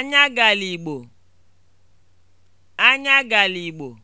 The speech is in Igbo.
Anya galigbo, anya galigbo